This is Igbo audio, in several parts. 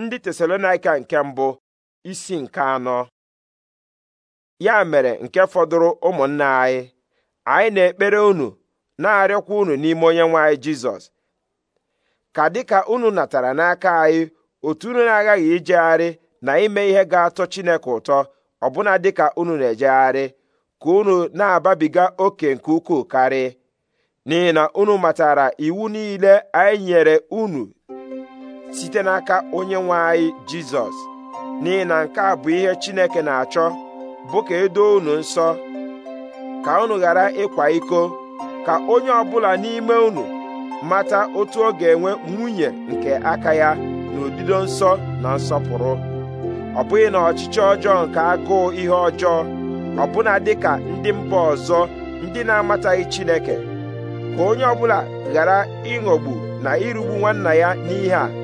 ndị tesalonaika nke mbụ isi nke anọ ya mere nke fọdụrụ ụmụnna anyị anyị na-ekpere unu na-arịọkwa unu n'ime onyenwe anyị jizọs ka dịka unu natara n'aka anyị otu unu na agaghị ijegharị na ime ihe ga-atọ chineke ụtọ ọbụna dịka unu na-ejegharị ka unu na-ababiga oke nke ukwuu karị n'ihi na unu matara iwu niile anyị nyere unu site n'aka onye nwe anyị jizọs n'ihi na nke a bụ ihe chineke na-achọ bụ ka edoo unu nsọ ka unu ghara ịkwa iko ka onye ọbụla n'ime unu mata otu ọ ga-enwe nwunye nke aka ya n'odido nsọ na nsọpụrụ ọ bụghị na ọchịchị ọjọọ nke agụụ ihe ọjọọ ọbụna ka ndị mba ọzọ ndị na-amataghị Chineke ka onye ọbụla ghara ịghọgbu na irugbu nwanna ya n'ihe a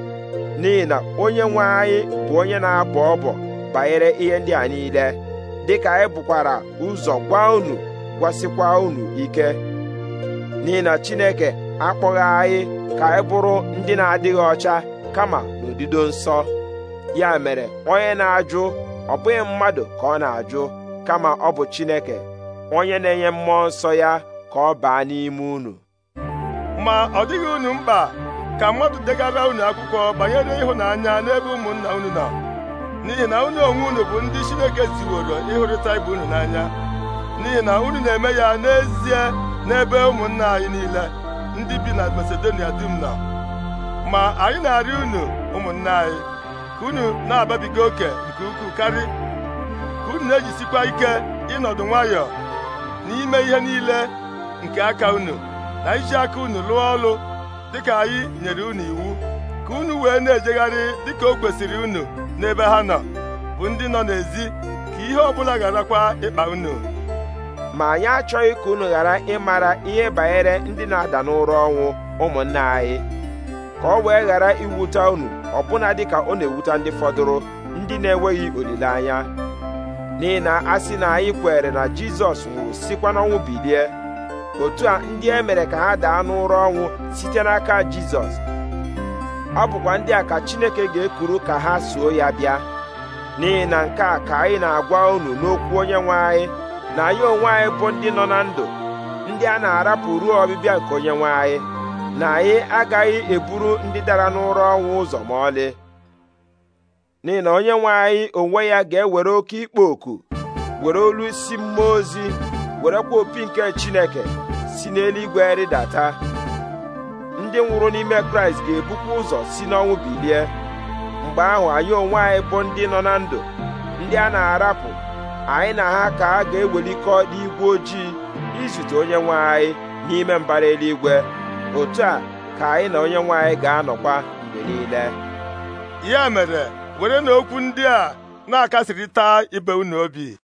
n'ihi na onye nwe anyị bụ onye na-abọ ọbọ banyere ihe ndị a niile dịka anyị bukwara ụzọ gwa unu gwasịkwa unu ike n'ihi na Chineke akpọghị anyị ka anyị bụrụ ndị na-adịghị ọcha kama n'odido nsọ ya mere onye na-ajụ ọ bụghị mmadụ ka ọ na-ajụ kama ọ bụ Chineke onye na-enye mmụọ nsọ ya ka ọ baa n'ime unu ma ọ dịghị unu mkpa ka mmadụ degara unu akwụkwọ banyere ịhụnanya n'ebe ụmụnna unu nọ n'ihi na unu onwe unu bụ ndị Chineke ziworo ịhụrịta ibe unu n'anya n'ihi na unu na-eme ya n'ezie n'ebe ụmụnna anyị niile ndị bi na Masedonia dum nọ ma anyị na-arị unu ụmụnna anyị ka unu na-ababiga oke nke ukwuu karị ka unu na-ejisikwa ike ịnọdụ nwayọọ n'ime ihe niile nke aka unu na iji aka unu lụọ ọlụ dịka anyị nyere unu iwu ka unu wee na-ejegharị dịka o kwesịrị unu n'ebe ha nọ bụ ndị nọ n'ezi ka ihe ọbụla gharakwa ịkpa unu ma anyị achọghị ka unu ghara ịmara ihe banyere ndị na-ada n'ụra ọnwụ ụmụnna anyị ka ọ wee ghara iwute unu ọbụna dịka ọ na-ewute ndị fọdụrụ ndị na-enweghị olileanya n'ihi na a sị na anyị kwere na Jizọs nwụrụ sikwa n'ọnwụ bilie otu a ndị e mere ka ha daa n'ụra ọnwụ site n'aka jizọs ọ bụkwa ndị a ka chineke ga-ekuru ka ha soo ya bịa n'ihi na nke a ka anyị na-agwa unu n'okwu onye nwe anyị na anyị onwe anyị bụ ndị nọ na ndụ ndị a na-arapụ ruo ọbịbịa nke onye nwe anyị na anyị agaghị eburu ndị dara n'ụra ọnwụ ụzọ ma ọlị n'ihi na onye nwe anyị onwe ya ga-ewere oke ikpo oku were olu isi mmụọ ozi werekwa opi nke chineke si n'eluigwe rịdata ndị nwụrụ n'ime kraịst ga-ebukwa ụzọ si n'ọnwụ bilie mgbe ahụ anyị onwe anyị bụ ndị nọ na ndụ ndị a na-arapụ anyị na ha ka a ga-ewelikọ n'igwe ojii izute onye nwe anyị n'ime mbara eluigwe otu a ka anyị na onye nwe anyị ga-anọkwa mgbe niile ya mere were na ndị a na-akasịrịta ibe unu obi